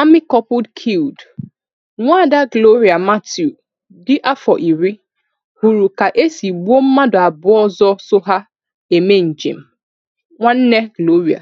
Army couple killed: Nwaada Gloria Mathew dị afọ iri hụrụ ka e si gbuo mmadụ abụọ ọzọ so ha eme njem. Nwanne Gloria